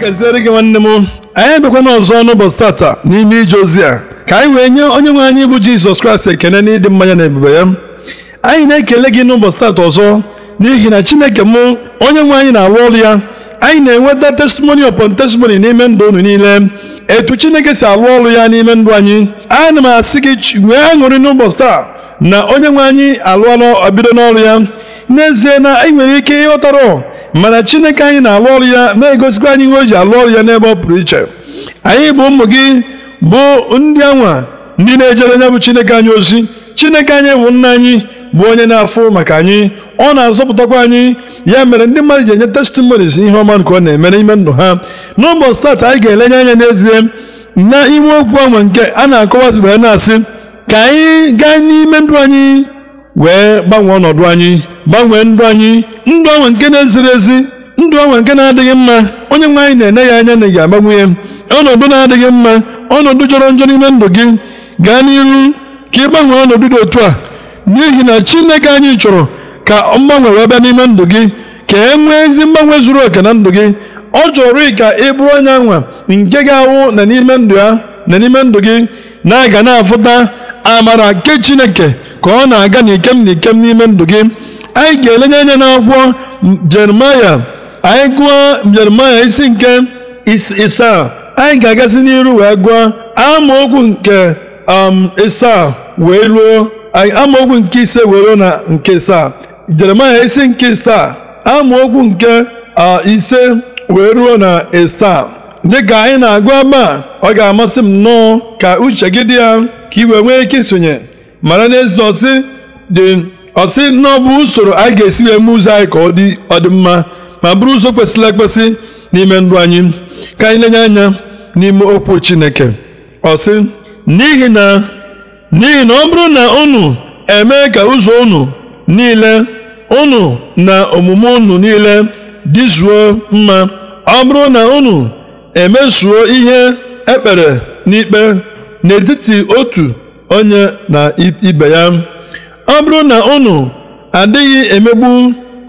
gaziere gị nwanne m anyị abịakwana ọzọ n'ụbọchị tata n'ime ije ozi a ka anyị wee nye onye nwe anyị bụ Jizọs Kraịst ekene n'ịdị mmanya na ebube ya anyị na-ekele gị n'ụbọchị tata ọzọ n'ihi na Chineke m onye nwe anyị na-arụ ọrụ ya anyị na-enweta testimony upon testimony n'ime ndụ unu niile etu Chineke si arụ ọrụ ya n'ime ndụ anyị ana m asị gị nwee aṅụrị n'ụbọchị taa na onye nwe anyị alụọla bido n'ọrụ ya n'ezie na anyị nwere ike ịghọtara mana chineke anyị na-alụ ọrụ ya na-egosikwa anyị ihe o ji alụ ọrụ ya n'ebe ọ pụrụ iche anyị bụ ụmụ gị bụ ndị anwa ndị na-ejere nya bụ chineke anyị ozi chineke anyị bụ nna anyị bụ onye na-afụ maka anyị ọ na-azọpụtakwa anyị ya mere ndị mmadụ ji enye testimonis ihe ọma nke ọ na-eme n'ime ndụ ha n'ụbọchị taata anyị ga-elenye anya n'ezie na iwu okwu anwa nke a na-akọwazi wee na-asị ka anyị gaa n'ime ndụ anyị wee gbanwee ọnọdụ anyị gbanwee ndụ anyị ndụ anwa nke na-eziri ezi ndụ anwa nke na-adịghị mma onye nwe anyị na-enye ya anya na ị ga-agbanwe ya ọnọdụ na-adịghị mma ọnọdụ jọrọ njọ n'ime ndụ gị gaa n'ihu ka ị gbanwee ọnọdụ dị otu a n'ihi na Chineke anyị chọrọ ka mgbanwe wee bịa n'ime ndụ gị ka e nwee ezi mgbanwe zuru oke na ndụ gị ọ chọrọ ka ị bụrụ onye anwa nke ga-awụ na n'ime ndụ ya na n'ime ndụ gị na-aga na-afụta amara nke Chineke ka ọ na-aga n'ikem n'ikem n'ime ndụ gị anyị ga-elenye anya n'akwụkwọ jeremaya anyị gụọ jeremaya isi nke isaa anyị ga-agazi n'iru wee gụọ amaokwu nke um, isaa wee ruo amaokwu nke ise wee ruo na nke isaa jeremaya isi nke isaa amaokwu nke ise wee ruo na isaa dịka anyị na-agụ a, ọ ga-amasị m nnọọ ka uche gị dị ya ka i wee nwee ike isonye mara na ezi ọsị dị ọ sị na ọ bụ usoro anyị ga-esi wee mee ụzọ anyị ka ọ dị mma ma bụrụ ụzọ kwesịrị ekwesị n'ime ndụ anyị ka anyị lenye anya n'ime okwu Chineke ọ sị n'ihi na n'ihi na ọ bụrụ na unu emee ka ụzọ unu niile unu na omume unu niile dịzuo mma ọ bụrụ na unu emezuo ihe ekpere n'ikpe n'etiti otu onye na ibe ya ọ bụrụ na unu adịghị emegbu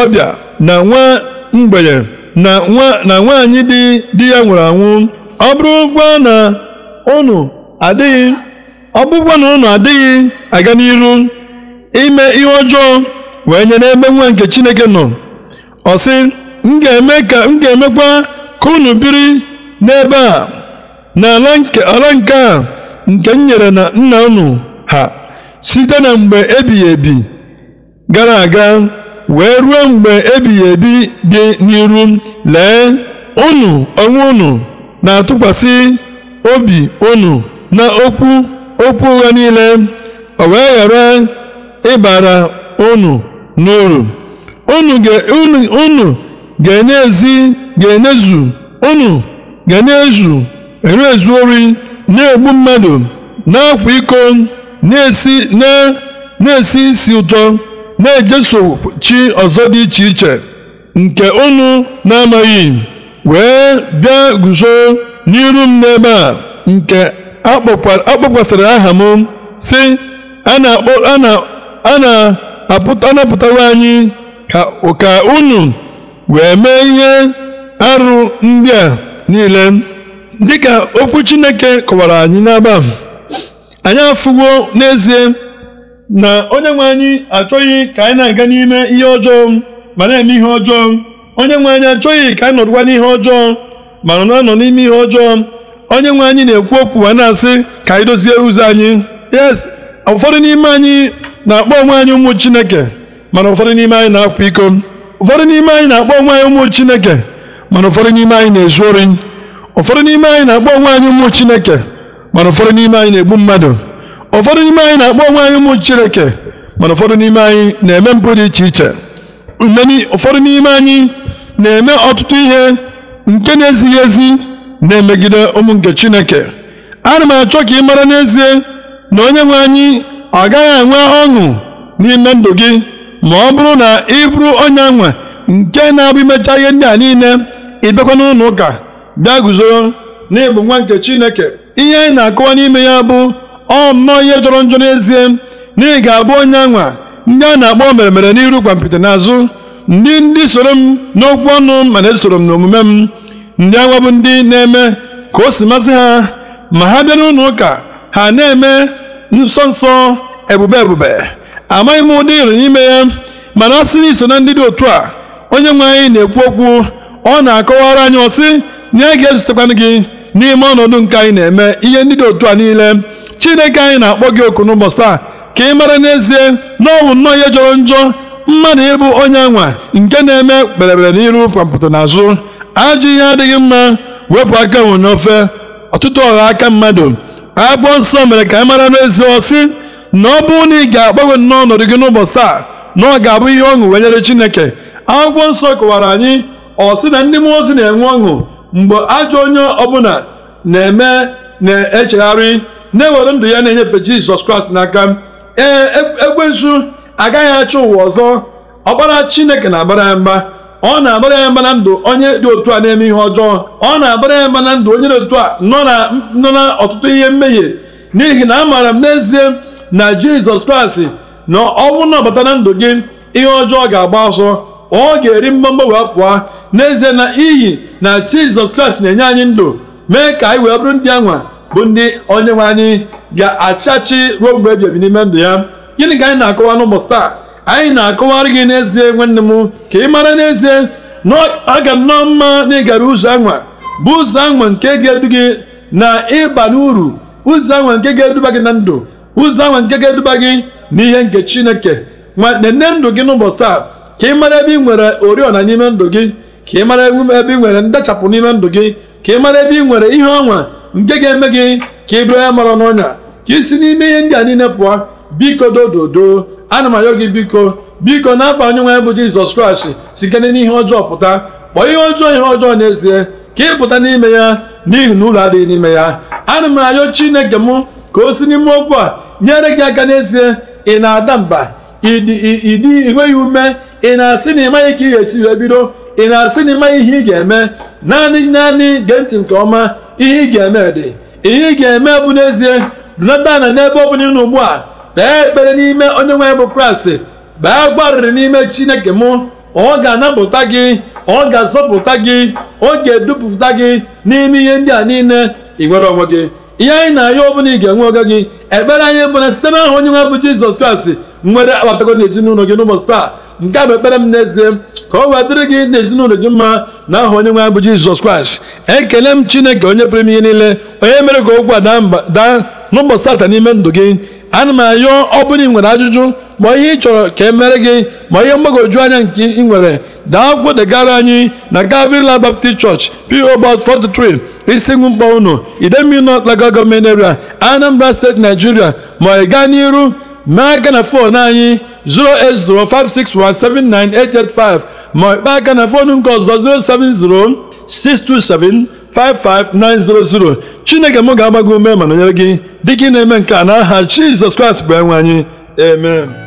ọbịa na nwa mgbenye na nwaanyị di di ya nwụrụ anwụ ọ gwa na unu adịghị ọ na unu adịghị aga n'iru ime ihe ọjọọ wee nye n'ebe nwa nke Chineke nọ ọ sị m ga-eme ka m ga-emekwa ka unu biri n'ebe a n'ala ala nke a nke m nyere na nna unu ha site na mgbe ebighị ebi gara aga wee ruo mgbe ebighị ebi dị n'iru lee unu onwe unu na-atụkwasị obi unu na okwu okwu ụgha niile o wee ghara ịbara unu n'uru unu ga-enyezu unu ga-enyezu erezu ori na-egbu mmadụ na-akwa iko na-esi na isi ụtọ na-ejeso chi ọzọ dị iche iche nke unu na-amaghị wee bịa guzo n'iru m n'ebe a nke akpọkwasịrị aha m sị a na anyị ka unu wee mee ihe arụ ndị a niile dịka okwu Chineke kọwara anyị n'aba anyị afụwo n'ezie na onye nwe anyị achọghị ka anyị na-aga n'ime ihe ọjọọ ma na-eme ihe ọjọọ onye nwe anyị achọghị ka anyị nọdụkwa n'ihe ọjọọ ma nọ na-anọ n'ime ihe ọjọọ onye nwe anyị na-ekwu okwu ma na-asị ka anyị dozie ụzọ anyị yes ụfọdụ n'ime anyị na-akpọ onwe anyị ụmụ chineke mana ụfọdụ n'ime anyị na-akwa iko ụfọdụ n'ime anyị na-akpọ onwe anyị ụmụ chineke mana ụfọdụ n'ime anyị na-ezu ori ụfọdụ n'ime anyị na-akpọ onwe anyị ụmụ chineke mana ụfọdụ n'ime anyị na-egbu mmadụ ụfọdụ n'ime anyị na-akpọ onwe anyị ụmụ Chineke mana ụfọdụ n'ime anyị na-eme mpụ dị iche iche ụfọdụ n'ime anyị na-eme ọtụtụ ihe nke na-ezighị ezi na-emegide ụmụ nke Chineke ana m achọ ka ị mara n'ezie na onye nwe anyị ọ gaghị enwe ọṅụ n'ime ndụ gị ma ọ bụrụ na ị bụrụ onye anwa nke na-abụ imecha ihe ndị a niile ịbịakwa n'ụlọ ụka bịa na n'ịbụ nwa nke Chineke ihe anyị na-akọwa n'ime ya bụ ọ nnọọ ihe jọrọ njọ n'ezie na ị ga-abụ onye anwa ndị a na-akpọ mere n'iru na n'azụ ndị ndị soro m n'okwu ọnụ ma na-esoro m n'omume m ndị anwa bụ ndị na-eme ka o si masị ha ma ha bịa n'ụlọ ụka ha na-eme nsọ nsọ ebube ebube amaghị m ụdị ịrụ n'ime ya mana ọ sị na iso na ndị dị otu a onye nwe anyị na-ekwu okwu ọ na-akọwara anyị ọsị na ya ga-ezutekwanụ gị n'ime ọnọdụ nke anyị na-eme ihe ndị dị otu a niile chineke anyị na-akpọ gị oku n'ụbọchị taa ka ị mara n'ezie na ọ bụ nnọọ ihe jọrọ njọ mmadụ ịbụ onye anwa nke na-eme kperebere n'iru kwapụta n'azụ ajọ ihe adịghị mma wepụ aka nwe ofe ọtụtụ ọha aka mmadụ agbụọ nsọ mere ka ị mara n'ezie ọsị na ọ bụrụ na ị ga-agbanwe nnọọ ọnọdụ gị n'ụbọchị taa na ọ ga-abụ ihe ọṅụ wenyere chineke akwụkwọ nsọ kọwara anyị ọ sị na ndị mmụọ ozi na-enwe ọṅụ mgbe ajọ onye ọbụla na-eme na-echegharị na-ewere ndụ ya na-enyefe jizọs kraịst n'aka ee e, ekwensu agaghị achọ ụwa ọzọ ọkpara chineke na-agbara ya mba ọ na-agbara ya mba na ndụ onye dị otu a na-eme ihe ọjọọ ọ na-agbara ya mba na ndụ onye dị otu a nọ na ọtụtụ ihe mmehie n'ihi na amaara m n'ezie na jizọs kraịst na ọ bụrụ na ọbata na ndụ gị ihe ọjọọ ga-agba ọsọ ọ ga-eri wee pụa. n'ezie na iyi na jizọs kraịst na-enye anyị ndụ mee ka anyị wee bụrụ ndị anwa bụ ndị onye nwe anyị ga-achachi ruo mgbe ebi ebi n'ime ndụ ya gịnị ka anyị na-akọwa n'ụbọchị taa anyị na-akọwarị gị n'ezie nwanne m ka ị mara n'ezie na ọ ga nnọọ mma na ịgara ụzọ anwa bụ ụzọ anwa nke ga-edu gị na ịba n'uru ụzọ anwa nke ga-eduba gị na ndụ ụzọ anwa nke ga-eduba gị ihe nke chineke nwanne nne ndụ gị n'ụbọchị taa ka ị mara ebe ị nwere oriọna n'ime ndụ gị ka ị mara ebe ị nwere ndachapụ n'ime ndụ gị ka ị mara ebe ị nwere ihe ọnwa nke ga-eme gị ka ị bụrụ ya mara n'ọnya ka ị si n'ime ihe ndị a niile pụọ biko dododo ana m ayọ gị biko biko n'afọ onye nwe bụ jizọs kraịst sikere n'ihe ọjọọ pụta kpọọ ihe ọjọọ ihe ọjọọ n'ezie ka ị pụta n'ime ya n'ihi na ụlọ adịghị n'ime ya ana m ayọ chineke m ka o si n'ime okwu a nyere gị aka n'ezie ị na-ada mba ịdị ị nweghị ume ị na-asị na ị maghị ka ị ga-esi wee bido ị na-asị na ịma ihe ị ga-eme naanị naanị gee ntị nke ọma ihe ị ga-eme dị ihe ị ga-eme bụ n'ezie nọta na n'ebe ọ bụla ugbu a kpee ekpere n'ime onye nwe bụ kraịst bee gbarịrị n'ime chineke mụ ọ ga-anapụta gị ọ ga-azọpụta gị ọ ga-edupụta gị n'ime ihe ndị a niile ị nwere onwe gị ihe anyị na-arịọ ọbụla ị ga-enwe oge gị ekpere anyị bụ na site n'aha onye nwe bụ jizọs kraịst nwere akpatago ezinụlọ gị n'ụbọchị taa nke a bụ ekpere m n'ezie ka ọ wee dịrị gị na ezinụlọ gị mma na aha onye nwe anyị bụ jizọs kraịst ekele m chineke onye pụrụ m ihe niile onye mere ka okwu a daa n'ụbọchị tata n'ime ndụ gị ana m ayọ ọ bụrụ ị nwere ajụjụ ma ihe ị chọrọ ka e mere gị ma ihe mgbagwoju anya nke ị nwere daa akwụkwọ degara anyị na gavrila baptist church po box 43 isi mkpọ unu idemili north local gọọmenti area anambra steeti nigeria ma ị gaa n'iru mee aka na fon anyị 08056179885 ma ịkpa aka na foonu nke ọzọ 07062755900 chineke m ga agbago gị ume ma nọnyere gị dịka ị na-eme nke a n'aha Jizọs Kraịst bụ enwe anyị amen